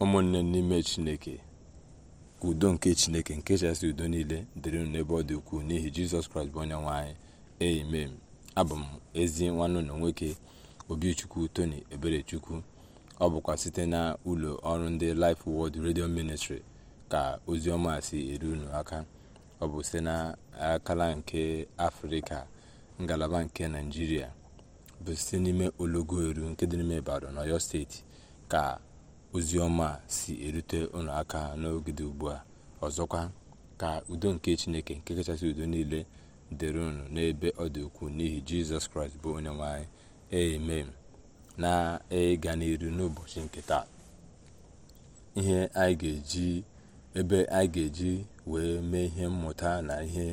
ụmụnne n'ime chineke ka udo nke chineke nke chasị udo niile dịrị n'ebe ọ dị ukwuu n'ihi jizọs kraịst bụ onye nwe anyị abụ m ezi nwanne na nwoke obichukwu toni eberechukwu ọ bụkwa site na ụlọ ọrụ ndị Life Word redio Ministry ka ozi ọma si eru unu aka ọ bụ site na akala nke afrịka ngalaba nke naijiria bụ site n'ime ologo eru nke dị n'ime Ibadan Ọyọ steeti ka ozi ọma si erute ụlọaka aka n'oge ugbu a ọzọkwa ka udo nke chineke nke kachasị udo niile dịrị unu n'ebe ọ dị ukwuu n'ihi jizọs kraịst bụ onye nwanyị eme na ịga e n'iru n'ụbọchị nke taa ihe anyị ga-eji ebe anyị ga-eji wee mee ihe mmụta na ihe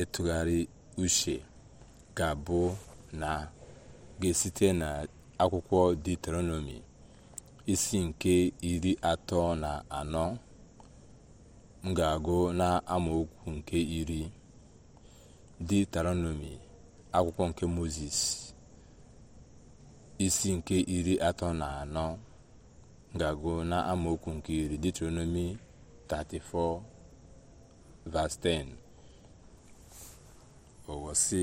ịtụgharị uche ga-abụ na ga-esite na akwụkwọ isi nke iri atọ na anọ m ga-agụ amaokwu nke iri diuteronomi akwụkwọ nke moses isi nke iri atọ na anọ m ga-agụ amaokwu nke iri diuteronomi 34 verse 10 owo sị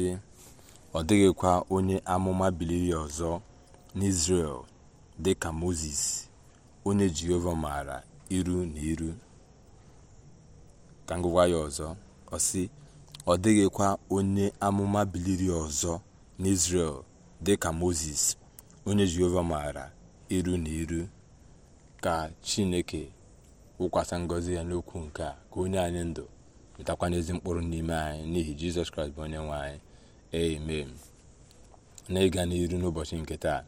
ọ dịghịkwa onye amụma biliri ọzọ n'izrel dị ka moses onye jehova maara iru na iru ka m ya ọzọ ọ ọ dịghịkwa onye amụma biliri ọzọ n'Israel dị ka mozes onye jehova maara iru na iru ka chineke wụkwasa ngọzi ya n'okwu nke a ka onye anyị ndụ wetakwana n'ezi mkpụrụ n'ime anyị n'ihi jizọs kraịst bụ onye nwe anyị amen na n'iru n'ụbọchị nke taa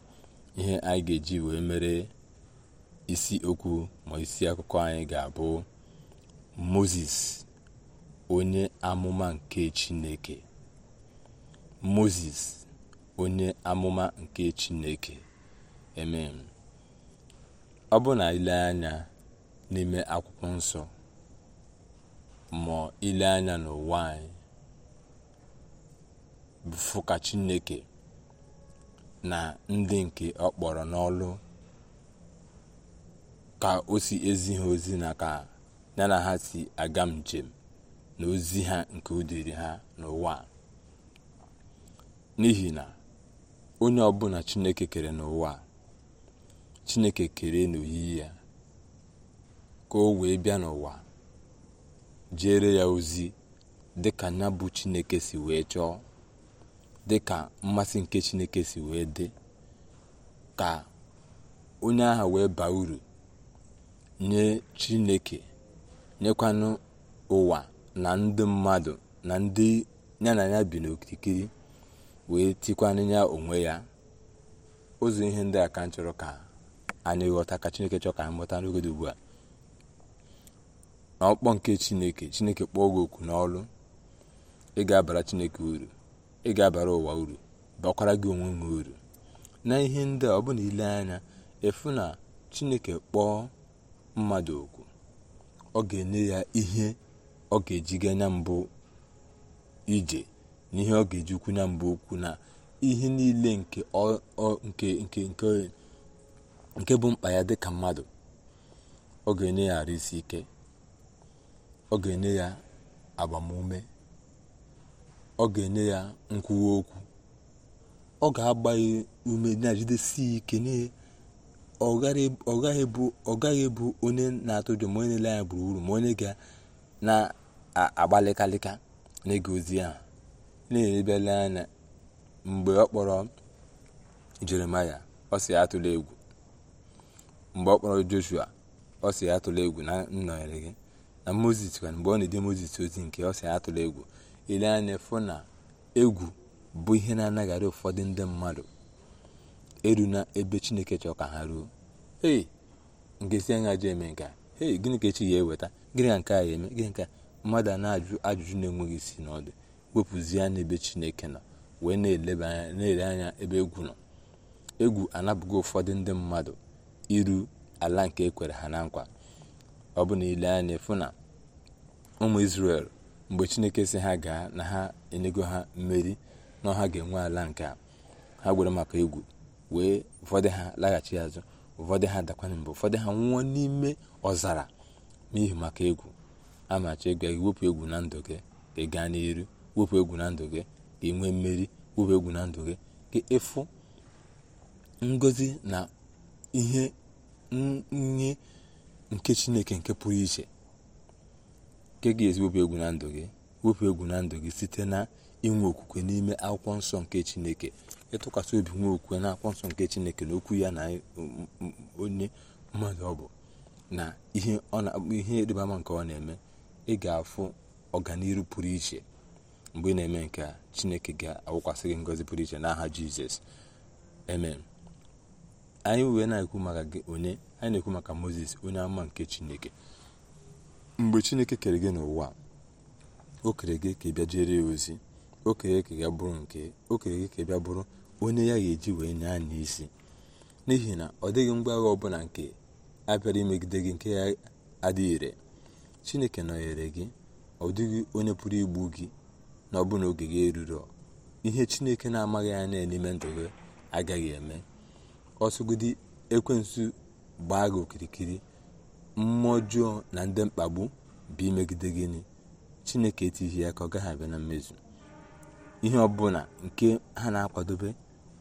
ihe anyị ga-eji wee mere isi okwu ma isi akụkọ anyị ga-abụ moses onye amụma nke chineke moses onye amụma nke chineke emem ọ bụ na ile anya n'ime akwụkwọ nsọ ma ile anya n'ụwa anyị bụ chineke na ndị nke ọ kpọrọ n'ọlụ ka o si ezi ha ozi na ka ya na ha si aga njem na ozi ha nke udiri ha n'ụwa n'ihi na onye ọbụla chineke kere n'ụwa chineke kere n'oyiyi ya ka o wee bịa n'ụwa jere ya ozi dịka nya bụ chineke si wee chọọ dị ka mmasị nke chineke si wee dị ka onye agha wee baa uru nye chineke nyekwanụ ụwa na ndị mmadụ na ndị ya na ya bi n'okirikiri wee tikwanụ ya onwe ya ụzọ ihe ndị a ka chọrọ ka anyị ghọta ka chineke chọrọ ka anyị mụta n'oge ugbu a na ọkpọ nke chineke chineke kpọọ gị oku n'ọrụ ị ga-abara chineke uru ị ga-abara ụwa uru bakwara gị onwe ha uru na ihe ndị a ọ bụla ile anya efu na chineke kpọọ mmadụ okwu ọ ga-enye ya ihe ọ ga-eji ga anya mbụ ije na ihe ọ ga-ejikwu anya mbụ okwu na ihe niile nke bụ mkpa ya dịka mmadụ ọ ga-enye ya isi ike ọ ga-enye ya agbamume ọ ga-enye ya nkwuwa okwu ọ ga-agba ume na-ejidesi ike ọ gaghị ebu onye na-atụ ụjọ ma onye na-ele anya gburugburu ma onye ga na-agbalịkalịka n'ịga ozi ahụ na-enyebele anya mgbe ọ kpọrọ jeremaya ọ sị atụla egwu mgbe ọ kpọrọ joshua ọ sị atụla egwu na nnọnyere gị na Mozis kwa mgbe ọ na-ede Mozis ozi nke ọ sị atụla egwu ele anya fụ na egwu bụ ihe na-anagharị ụfọdụ ndị mmadụ eru na ebe chineke chọrọ ka ha ruo ee nke si anya ji eme nke ee gịnị ka echi ya eweta gịnị ka nke a ya eme gịnị ka mmadụ a na-ajụ ajụjụ na-enweghị isi n'ọdụ wepụzie anya ebe chineke nọ wee na-eleba anya na-ele anya ebe egwu nọ egwu anabụghị ụfọdụ ndị mmadụ iru ala nke ekwere ha na nkwa ọ bụ na ile anya fụ na ụmụ isrel mgbe chineke si ha gaa na ha enyego ha mmeri n'ọha ga-enwe ala nke a ha gwere maka egwu wee ụfọdụ ha laghachi azụ ụfọdụ ha dakwana mgbe ụfọdụ ha nwụọ n'ime ọzara n'ihi maka egwu amachi ego gị wepụ egwu na ndụ gị ka ị gaa wepụ egwu na ndụ gị ka ị nwee mmeri wepụ egwu na ndụ gị ka ịfụ ngozi na ihe nye nke chineke nke pụrụ iche nke ga wepụ egwu na ndụ gị wepụ egwu na ndụ gị site na inwe okwukwe n'ime akwụkwọ nsọ nke chineke ịtụkwasị obi nwe okwukwe na akwụkwọ nsọ nke chineke na okwu ya na um, um, onye mmadụ ọ bụ na ihe ịrịba nke ọ na-eme ị ga-afụ ọganiru pụrụ iche mgbe ị na-eme nke a chineke ga-awụkwasị gị ngozi pụrụ iche n'aha jizọs anyị wee na-ekwu maka gị na-ekwu maka moses onye ama nke chineke mgbe chineke kere gị n'ụwa o kere gị ka ị bịa jere ya ozi o kere ka ya bụrụ nke o kere gị ka ị bụrụ onye ya ga-eji wee nye anya isi n'ihi na ọ dịghị mgbe agha ọbụla nke abịara imegide gị nke ya adịghị ire chineke nọnyere gị ọ dịghị onye pụrụ igbu gị na ọbụna oge gị eruru ihe chineke na-amaghị anya n'ime ndụ gị agaghị eme ọsọgide ekwensu gbaa gị okirikiri mmụọ na ndị mkpagbu bụ imegide gịnị chineke etighi ya ka ọ gaghị abịa na mmezu ihe ọbụla nke ha na-akwadobe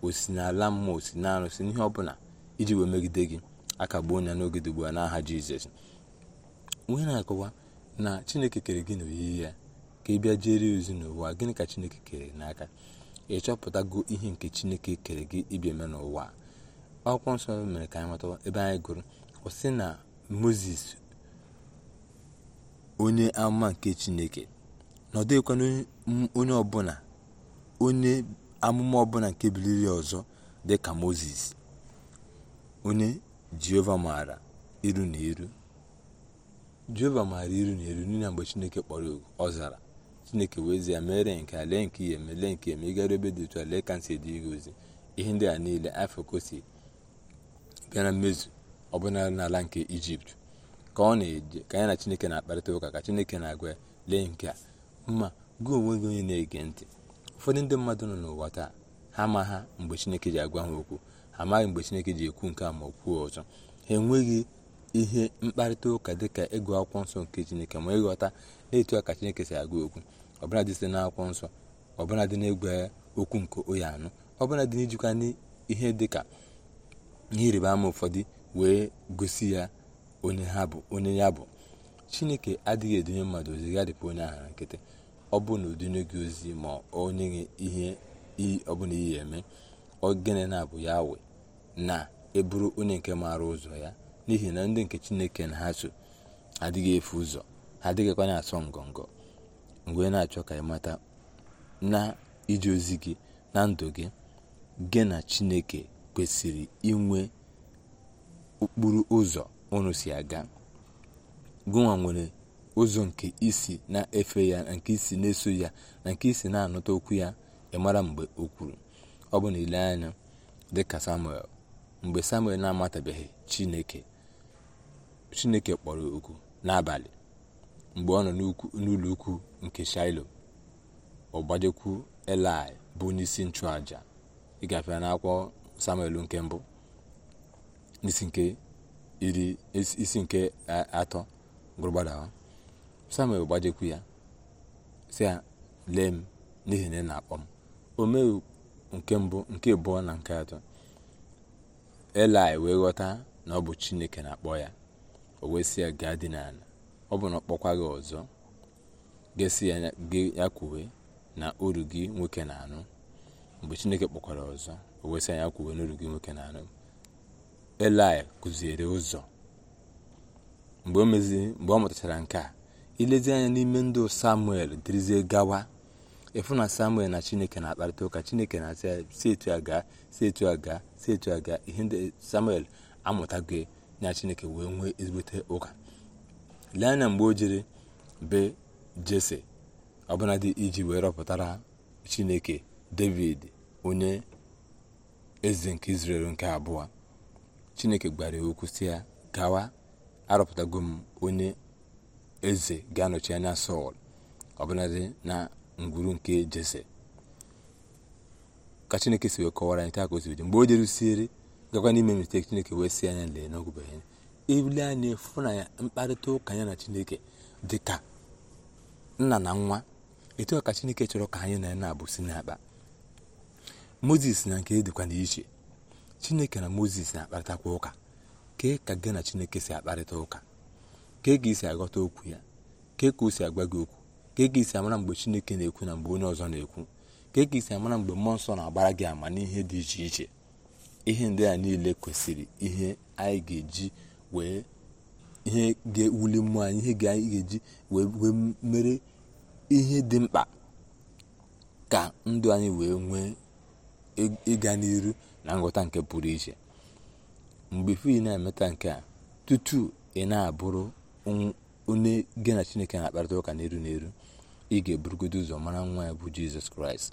osi n'ala mmụọ osi na arụsị n'ihe ọbụla iji wee megide gị akagbuo ya n'oge dị n'aha jizọs onye na-akọwa na chineke kere gị na oyiyi ya ka ị bịa jere ozi n'ụwa gịnị ka chineke kere n'aka ị chọpụtago ihe nke chineke kere gị ịbịa eme n'ụwa akwụkwọ nsọ mere ka anyị mata ebe anyị gụrụ ọ na moses onye amụma nke chineke na onye ọbụla onye amụma ọbụla nke biliri ọzọ dị ka moses onye jehova maara iru na eru jehova maara iru na eru n'ihi mgbe chineke kpọrọ oku ọ zara chineke wee ya mere nke alenki lee nke ihe nke ịgara ebe dị otu a ka ozi ihe ndị a niile afọ kosi bịa mmezu ọbụna n'ala nke ijipt ka ọ na-eje ka anyị na chineke na-akparịta ụka ka chineke na-agwa lee nke a mma gị onwe gị onye na-ege ntị ụfọdụ ndị mmadụ nọ n'ụwa taa ha ha mgbe chineke ji agwa ha okwu ha amaghị mgbe chineke ji ekwu nke a ma okwuo ọzọ ha enweghị ihe mkparịta ụka dị ka ịgụ akwụkwọ nsọ nke chineke ma ịghọta na-etu ka chineke si agwa okwu ọbụla dị site n'akwụkwọ nsọ ọbụla dị egwe okwu nke onye anụ ọbụla dị n'ijikwa n'ihe dị ka ihe ịrịba ama ụfọdụ wee gosi ya onye ya bụ chineke adịghị edinye mmadụ ozi gadịpụ onye ahara nkịtị ọ bụ na odinye gị ozi ma onye gị ihe ọbụla iyi eme ogene na-abụ ya we na eburu onye nke maara ụzọ ya n'ihi na ndị nke chineke na ha so adịghị efu ụzọ ha adịghịkwa na-asọ ngọngọ mgbe na-achọ ka ịmata na ije ozi gị na ndụ gị gị na chineke kwesịrị inwe okporo ụzọ unu si aga gụnwa nwere ụzọ nke isi na-efe ya na nke isi na-eso ya na nke isi na anọta okwu ya ịmara mgbe o kwuru ọ bụ na ile anya dịka samuel mgbe samuel na-amatabeghị chineke chineke kpọrọ oku n'abalị mgbe ọ nọ n'ụlọ ukwu nke shailo ọ gbajekwu elai bụ onye isi ịgafe ịgafee akwụkwọ samuel nke mbụ isi nke iri isi nke atọ gụrụgbadawa samuel gbajekwu ya si ya lee m n'ihi na ị na-akpọ m o nke mbụ nke abụọ na nke atọ elai wee ghọta na ọ bụ chineke na-akpọ ya o wee sị ya gaa dị n'ala ọ bụ na ọ kpọkwa gị ọzọ ga-esi ya kwuwe na uru gị nwoke na-anụ mgbe chineke kpọkwara ọzọ o wee sị ya kwuwe na uru gị nwoke na-anụ Elaị kụziere ụzọ mgbe o mgbe ọ mụtachara nke a ilezi anya n'ime ndụ samuel dịrịzie gawa ịfụ na samuel na chineke na-akparịta ụka chineke na-asị si etu a gaa si etu a gaa si etu a gaa ihe ndị samuel amụtago ya chineke wee nwee ezigbote ụka lee anya mgbe o jiri be jese ọbụladị iji wee rọpụtara chineke david onye eze nke israel nke abụọ chineke gwara ya okwu ya gawa arụpụtago m onye eze ga-anọchi anya sọl ọbụladị na ngwuru nke jese ka chineke si wee kọwara anyị taa ka o si mgbe o jerusiere gakwa n'ime misteki chineke wee si anya lee n'ọgụbeghị ya ebili anyị fụ na ya mkparịta ụka ya na chineke dị ka nna na nwa etu ka chineke chọrọ ka anyị na ya na-abụ si n'akpa moses na nke e dịkwa n'iche chineke na moses na-akparịtakwa ụka kee ka gị na chineke si akparịta ụka kee ka isi aghọta okwu ya kee ka o si agwa gị okwu kee ka isi amara mgbe chineke na-ekwu na mgbe onye ọzọ na-ekwu kee ka isi amara mgbe mmụọ nsọ na-agbara gị ama n'ihe dị iche iche ihe ndị a niile kwesịrị ihe anyị ga-eji wee ihe ga-ewuli mmụọ anyị ihe anyị ga-eji wee mere ihe dị mkpa ka ndụ anyị wee nwee ịga n'iru na nghọta nke pụrụ iche mgbe fi na-emeta nke a tutu ị na-abụrụ onye gị na chineke na-akparịta ụka n'eru n'eru ị ga-eburugodo ụzọ mara nwa ya bụ jizọs kraịst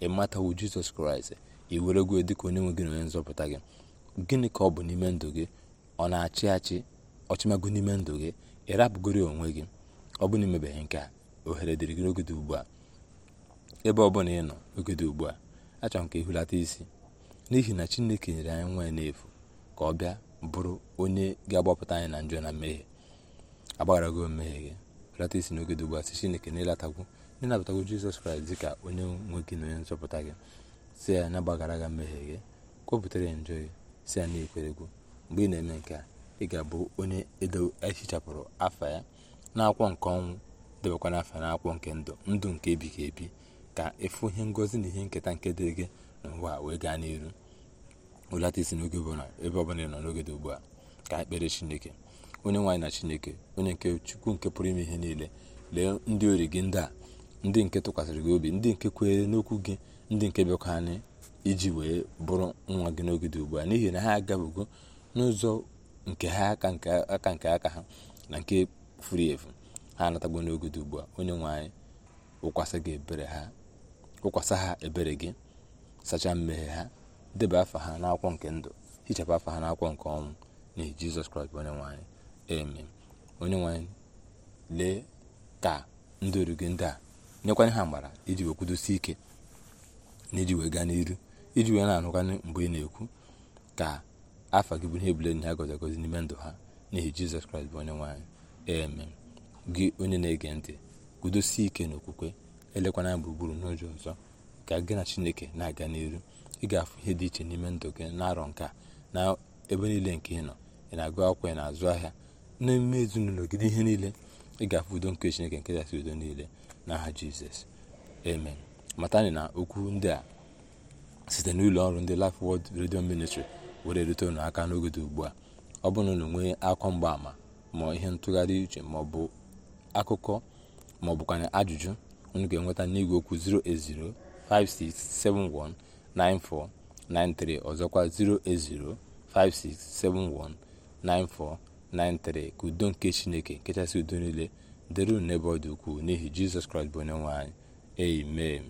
ị matawo jizọs kraịst ị were dị dịka onye nwe gị na onye nzọpụta gị gịnị ka ọ bụ n'ime ndụ gị ọ na-achị achị ọchịmago n'ime ndụ gị ị rapụgoro onwe gị ọ bụ na nke a ohere dịrị gị n'ogede ugbu a ebe ọ bụla ị nọ ogede ugbu a achọrọ m ka ị isi n'ihi na chineke nyere anyị nwa n'efu ka ọ bịa bụrụ onye ga-agbapụta anyị na njọ na mmehie agbagharago mmehie gị rata isi n'oge dị ugbu a sị chineke n'ịlatagwu n'ịnabatago jizọs kraịst ka onye nwe gị na onye nzọpụta gị si ya na gbaghara gị mmehie gị kwupụtara ya njọ gị si ya na ikweregwu mgbe ị na-eme nke a ị ga-abụ onye edo ehichapụrụ afa ya n'akwụkwọ nke ọnwụ debekwa na n'akwụkwọ nke ndụ ndụ nke ebighị ebi ka ịfụ ihe ngozi na ihe nketa nke dịrị gị n'ụwa wee gaa n'iru ụlata isi n'oge na ebe ọbụla ị nọ n'oge dị ugbu a ka ekpere chineke onye nwaanyị na chineke onye nke chukwu nke pụrụ ime ihe niile lee ndị ori gị ndị a ndị nke tụkwasịrị gị obi ndị nke kwere n'okwu gị ndị nke bịakwa anyị iji wee bụrụ nwa gị n'oge dị ugbu a n'ihi na ha agabugo n'ụzọ nke ha aka nke aka nke aka ha na nke furu efu ha anatagbo n'oge dị ugbu a onye nwaanyị ụkwasị gị ebere ha ụkwasị ha ebere gị sachaa mmehie ha deba afa ha n'akwụkwọ nke ndụ hichapụ afa ha n'akwụkwọ nke ọnwụ n'ihi jizọs kraịst bụ onye nwanyị amen onye nwanyị lee ka ndị oru gị ndị a nyekwanye ha mgbara iji wee kwudosi ike na iji wee gaa n'iru iji wee na-anụkwanye mgbe ị na-ekwu ka afa gị bụ ihe ebule na ha gozi agozi n'ime ndụ ha n'ihi jizọs kraịst bụ onye nwanyị amen gị onye na-ege ntị kwudosie ike n'okwukwe elekwana gburugburu n'ụzọ ọzọ ka gị na chineke na-aga n'iru ị ga-afụ ihe dị iche n'ime ndụ gị na-arọ nke a na ebe niile nke ị nọ ị na-agụ akwụkwọ ị na-azụ ahịa n'eme ezinụlọ gị ihe niile ị ga-afụ udo nke chineke nke dasị udo niile n'aha jizọs amen matani na okwu ndị a site n'ụlọ ọrụ ndị Life wod redio Ministry were rute unu aka n'oge dị ugbu a ọ bụrụ na unu nwee akwa mgbaama ma ihe ntụgharị uche ma ọ bụ akụkọ ma ọ ajụjụ unu ga-enweta n'igwe okwu 080 56719493 ọzọkwa 08056719493 ka udo nke chineke nke kachasị udo niile dịrị n'ebe ọ dị ukwuu n'ihi jizọs kraịst bụ onye nwe amen